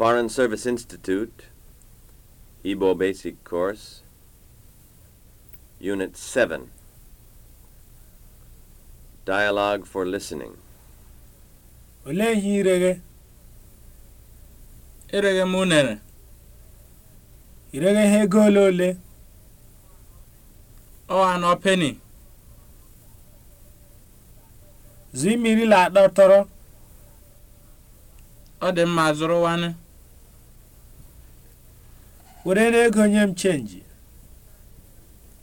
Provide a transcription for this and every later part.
Foreign Service Institute, Igbo Basic Course, Unit 7, Dialogue for Listening. Olee ihe ireghe? Ireghe m unere. Ireghe ihe ego ole ole? Ọ n'ọ peni. Zụ mmiri la Ọ dị mma zụrụ wani. were na n'ego onye m chenji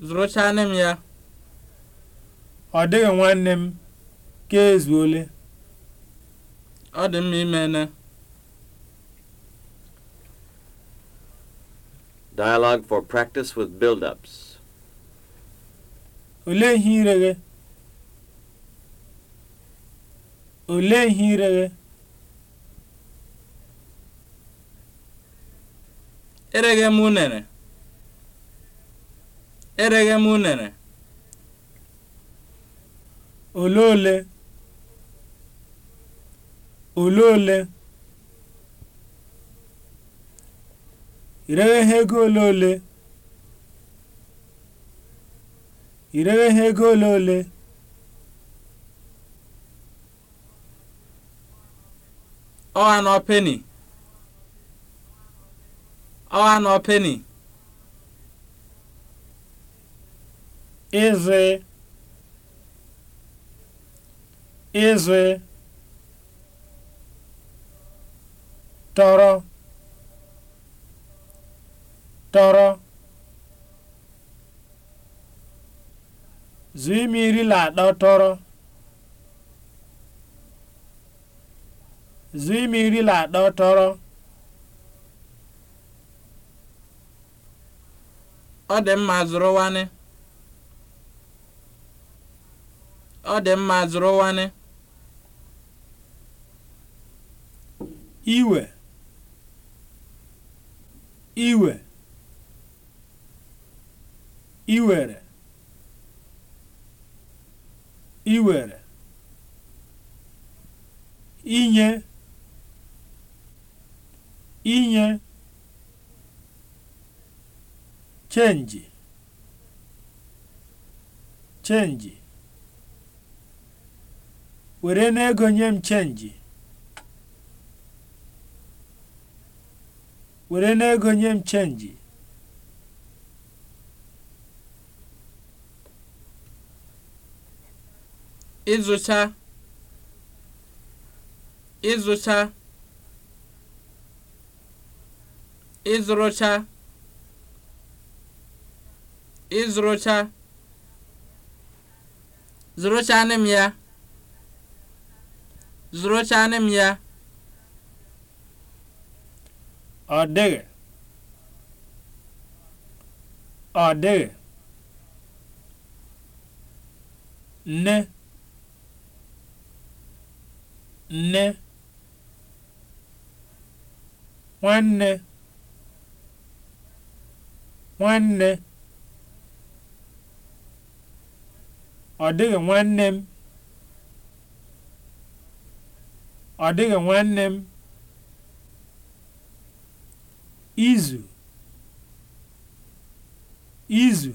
zụrụchaa nne m ya ọ dịghị nwanne m ka ezuole ọ dị mma imene Dialogue for practice with build-ups. Olee ihe ire ereghe m unere ereghe m unere ole ole ole ole ireghe ha ego ole ole ireghe ha ego ole ole ọha na penny ọnụ penny ịzụ ịzụ tọrọ tọrọ zụ ime iri na atọ tọrọ zụ ime iri na atọ tọrọ ọ dị mma zụrụwanị ọ dị mma zụrụwanị iwe iwe iwere iwere inye inye Change! Change! were n'ego nye m chenji were n'ego nye m chenji ịzụcha ịzụcha ịzụrụcha ịzụrụcha zụrụchanị m ya zụrụchanị m ya ọ dịghị ọ dịghị nne nne nwanne nwanne ọ dịghị nwanne m ọ dịghị nwanne m izu izu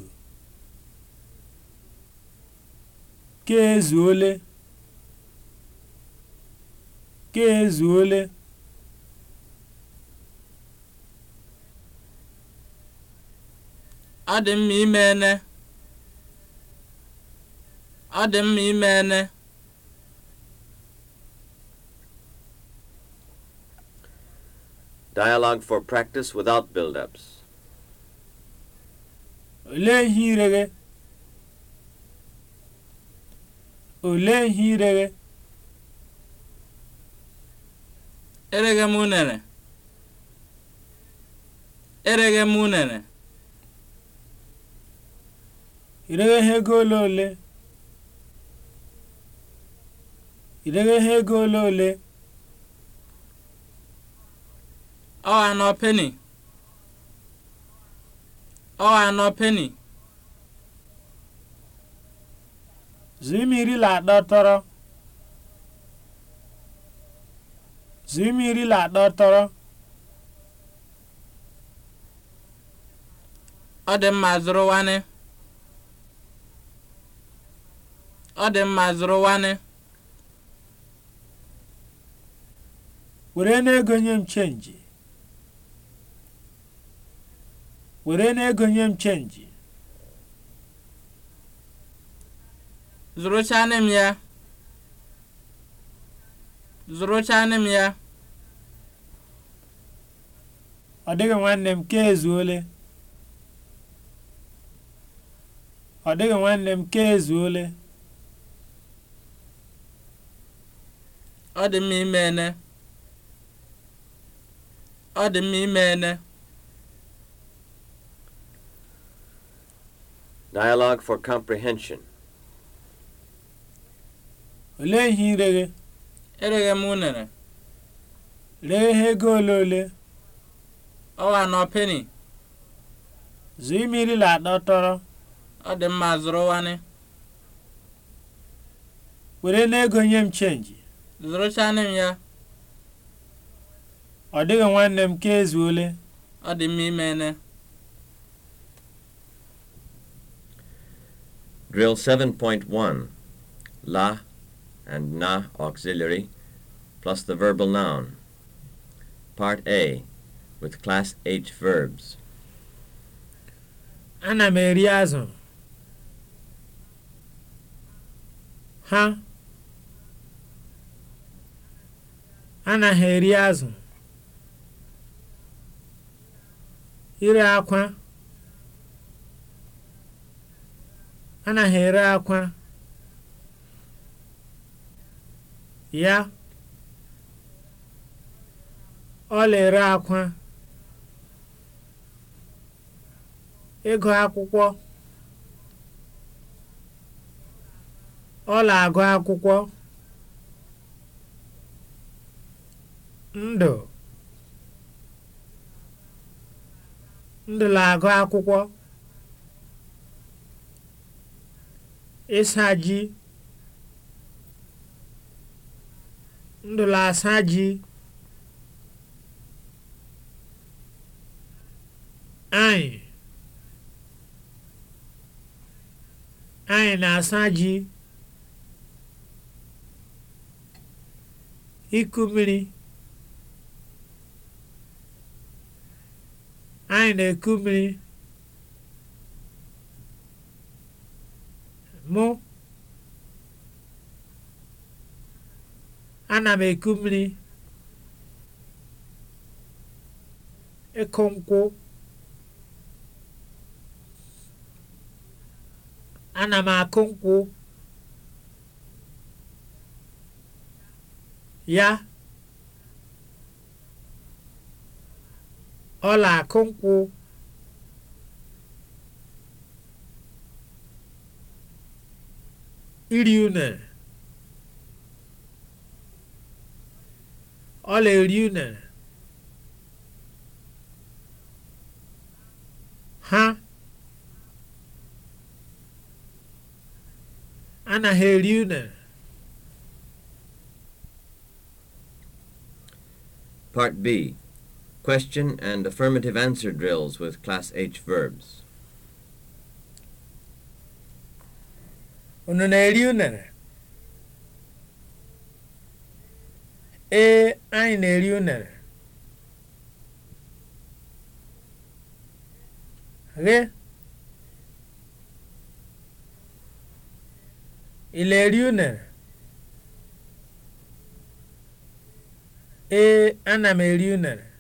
ka ezuole ka ezuole adị mma ime ene Ọ dị mma ime Dialogue for practice without build-ups. Olee ihe ire gị? Olee ihe ire gị? Ereghe m unere. Ereghe m unere. Ireghe ego ole ole? idego ihe ego ole ole ọ anọ peni ọ anọ peni zụimiri la atọ tọrọ zụimiri la atọ tọrọ ọ dị mma zụrụ nwanne ọ dị mma zụrụ nwanne were n'ego nye m chenji were n'ego nye m chenji zụrụchanị m ya zụrụchanị m ya ọ dịghị nwanne m ka ezuole ọ dịghị nwanne m ka ezuole ọ dị mma ime ene ọ dị mma ime ene Dialogue for comprehension. Olee ihe ire gị? Ereghe m unere. Lee ihe ego ole ole? wa nọ peni. Zụọ mmiri la atọ tọrọ. Ọ dị mma zụrụ wani. Were n'ego nye m chenji. Zụrụchanị m ya. ọ dịghị nwanne m ka ole ọ dị mma imene Drill 7.1 La and na auxiliary plus the verbal noun. Part A with class H verbs. Ana m eri azụ. Ha anaghị eri azụ. ire akwa anaghị ere akwa ya ọla ere akwa ịgụ akwụkwọ ọla agụ akwụkwọ ndụ ndụla agụ akwụkwọ ịsa ndụla asa ji anyị anyị na-asa ji iku mmiri Nwaanyị na-eku mmiri. Mụ ana m eku mmiri. Ịkụ nkwụ. Ana m akụ nkwụ. Ya. ọla akụ nkwụ iri une ọla eri une ha anaghị eri une Part B Question and affirmative answer drills with Class H verbs. Unu na Ị na-eri unere? Ee, ana m eri unere.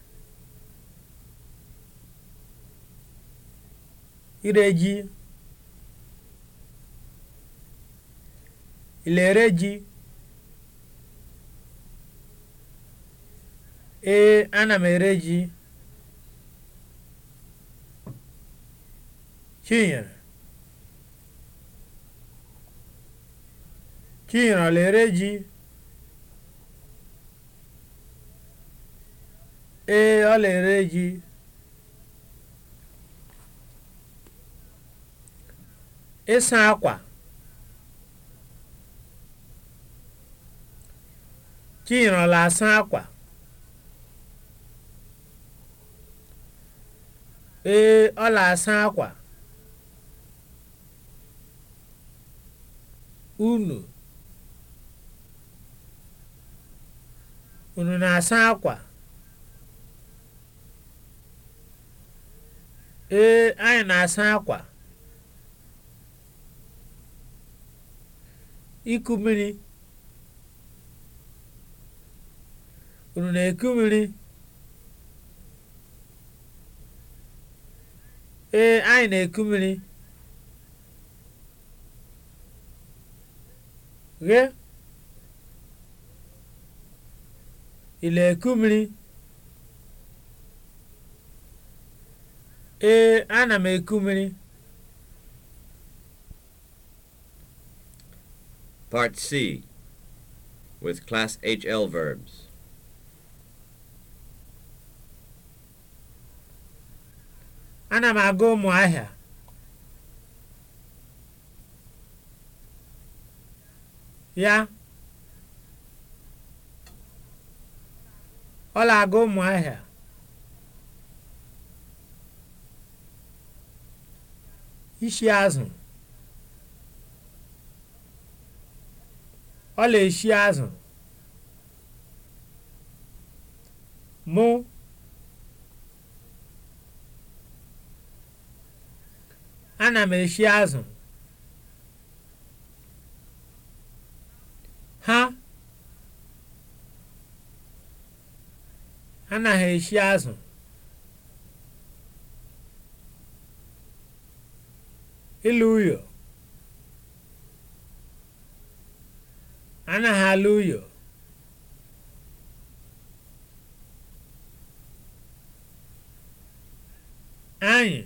ire ji ilere ji ee ana m ere ji chinyere chinyere lere ji ee ọ lere ji ịsa akwa e, na asa akwa ee ọ na-asa akwa unu unu na-asa akwa ee anyị na-asa akwa iku mmiri unu na-eku mmiri ee anyị na-eku mmiri ghe ị na-eku mmiri ee ana m eku mmiri Part C with class HL verbs. Ana m aga Ụmụahịa. Ya. Ọ na-aga Ụmụahịa. Ishi azụ. ọ na-eshi azụ mụ ana m eshi azụ ha anaghị eshi azụ ilu uyo ana alụ uyo anyị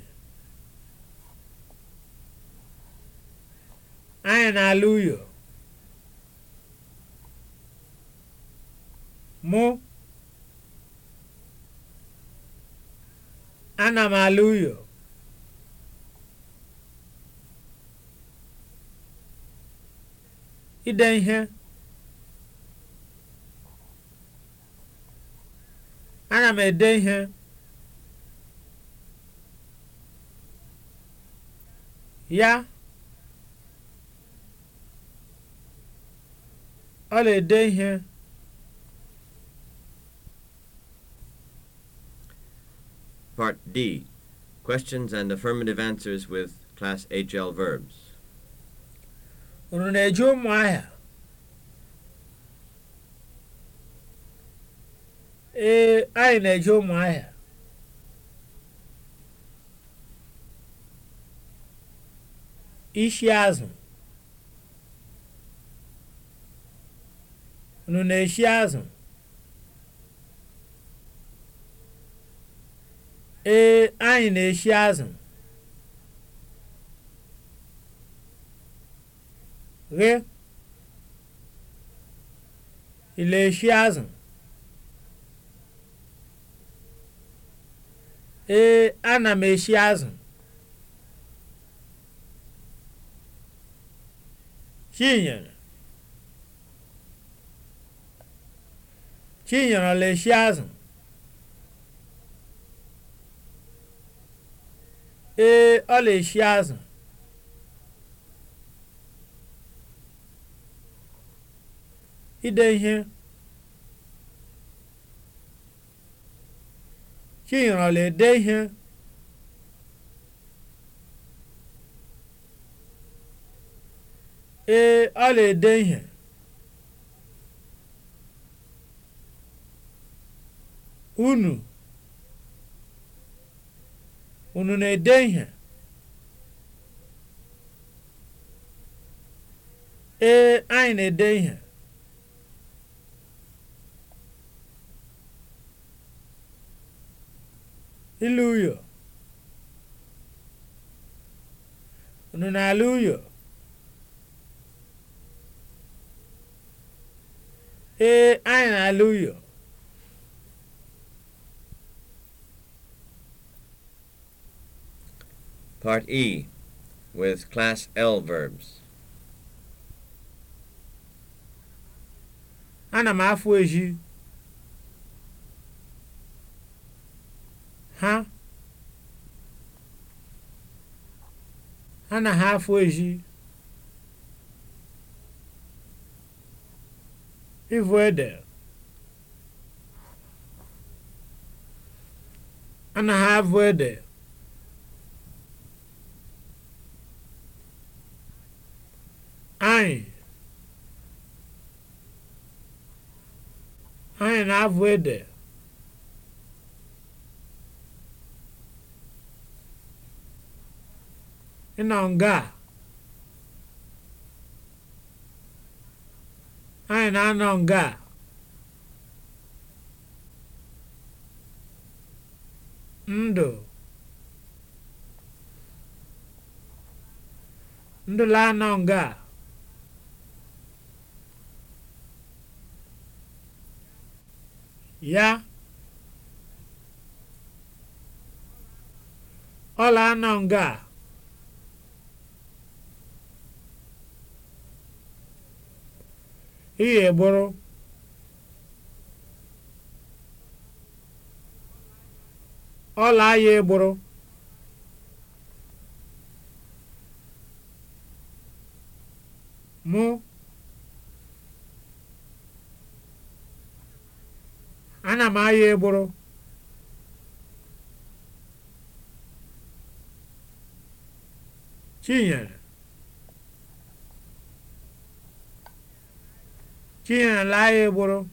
anyị na-alụ ụyọ mụ ana m alụ ụyọ ide ihe Aga m ede ihe ya ọ na-ede ihe Part D Questions and affirmative answers with Class HL verbs. Unu na-eji ụmụ ahịa? ee anyị na-eje ahịa ishi azụ unu na-eshi azụ ee anyị na-eshi azụ ghe ị eshi azụ ee ana m eshi azụ chinyere chinyere ọla eshi azụ ee ọla na-eshi azụ ide ihe chinyere ọ na-ede ihe ee ọ ede ihe unu unu na-ede ihe ee anyị na-ede ihe Ile uyo. Unu na-ala uyo? Ee, anyị na-ala uyo. Part E with class L verbs. Ana m afụ eji. ha anaghị afọ ezi ịvụ ede anaghị avụ ede anyị anyị na-avụ ede ịnọ nga anyị na-anọ nga ndụ ndụ la-anọ nga ya ọla anọ nga ị gburu ọla ahịa egburu mụ ana m ahịa egburu Chinyere ahịa egboro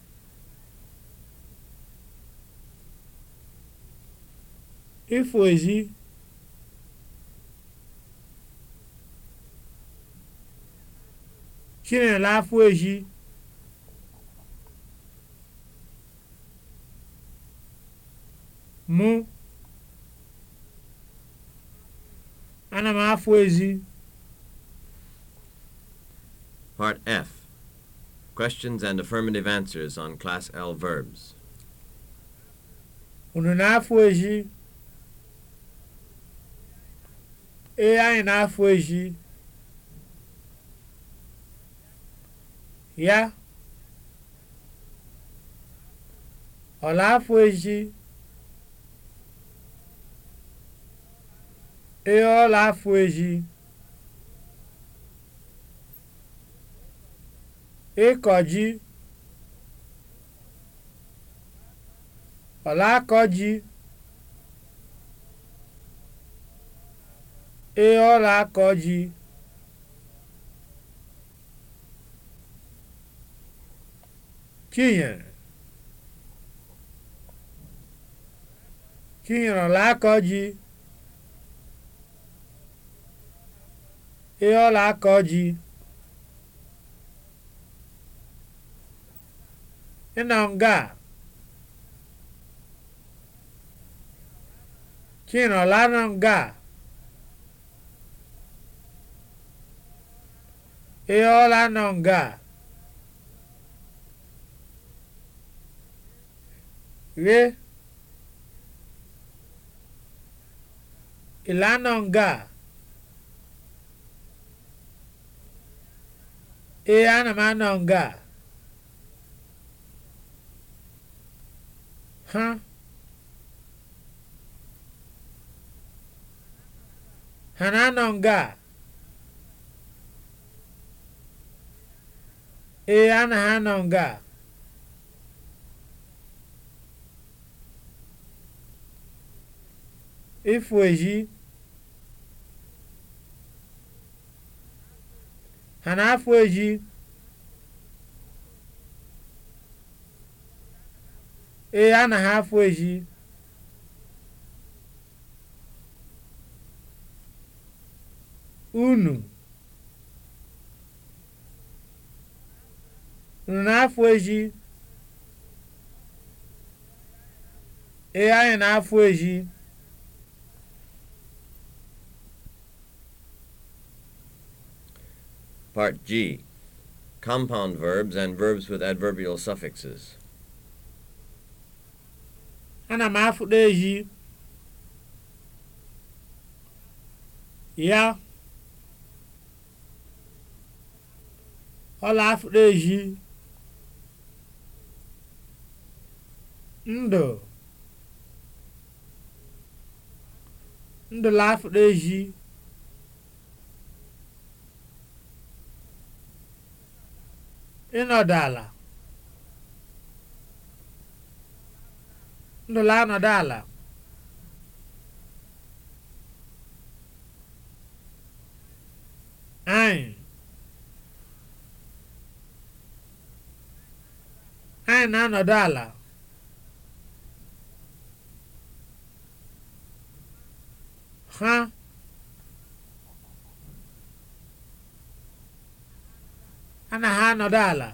ifo ezi chinyela afọ ezi mụ ana m afọ ezi part f Questions and affirmative answers on Class L verbs. Unu na-afụ ezi? Ee, anyị na-afụ ezi? Ya? Ọ na-afụ eji? Ee, ọ na-afụ eji. ịkọ ji ọlaakọ ji ee ọlaakọ ji kinyere kinyere ọlaakọ ji ee ọlaakọ ji nga chinọlanọnga ịọlanọnga ghe ịlanọnga ee ana m anọ nga ha ha na-anọ nga a ee na ha anọ nga a ịfụ eji ha na-afụ eji ee anaghị afụ eji unu unu na-afụ eji ee anyị na-afụ eji Part G. Compound verbs and verbs with adverbial suffixes. ana m afụdo ehi ya ọla afụdo ehi ndụ la afụdo ehi ịnọdụ ala ndụla anọdụ ala anyị anyị na-anọdụ ala ha ana ha anọdụ ala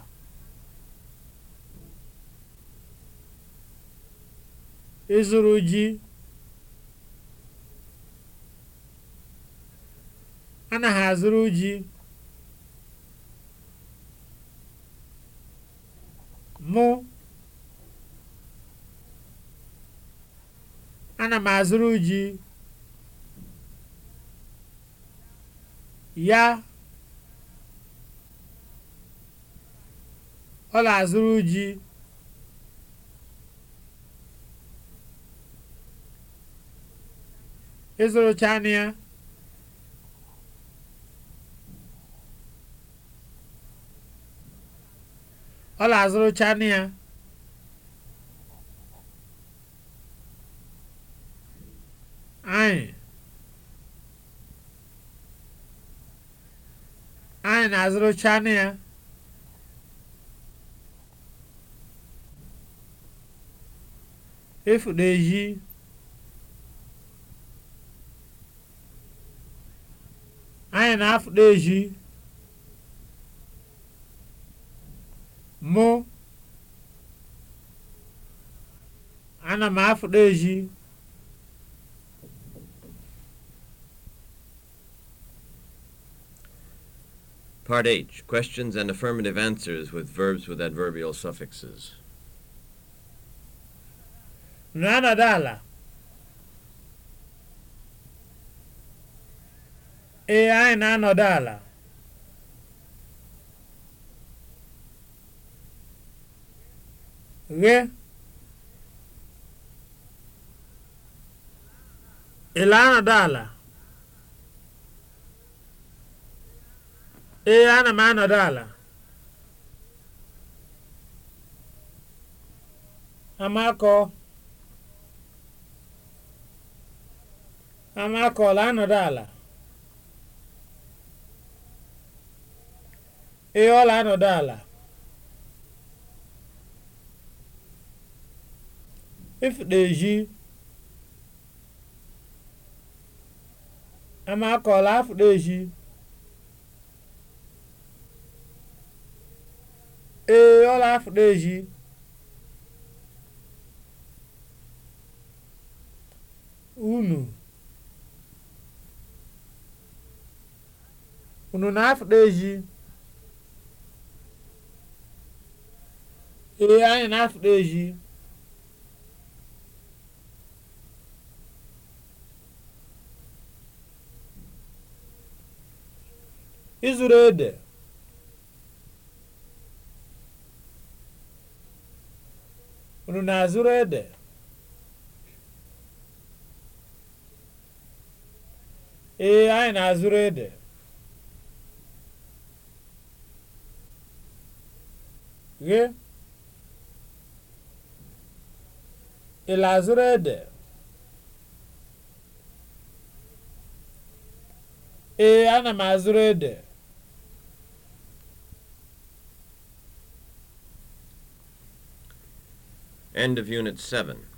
ịzụrụ ji anaghị azụrụ ji mụ ana m azụrụ ji ya ọ na-azụrụ ji ịzụrụ anụ ya ọ na-azụrụcha ya anyị anyị na azụrụ anụ ya efu na-eyi anyị na-afụta ezi mụ ana m afụta ezi Part H Questions and affirmative answers with verbs with adverbial suffixes. Nana dala. ee anyị na-anọdụ ala ghe ị anọdụ ala ee ana m anọdụ ala amakọ amakọ la anọdụ ala Ee, ọ na-anọdụ ala. If na-eji amakọla afụ na-eji. Ee, ọ na-afụ na-eji. Unu. Unu na-afụ na-eji. ee anyị na-afụ ezi Izuru ede unu na-azụrụ ede ee anyị na-azụrụ ede ghe ị ede ee ana m azụrụ ede End of Unit 7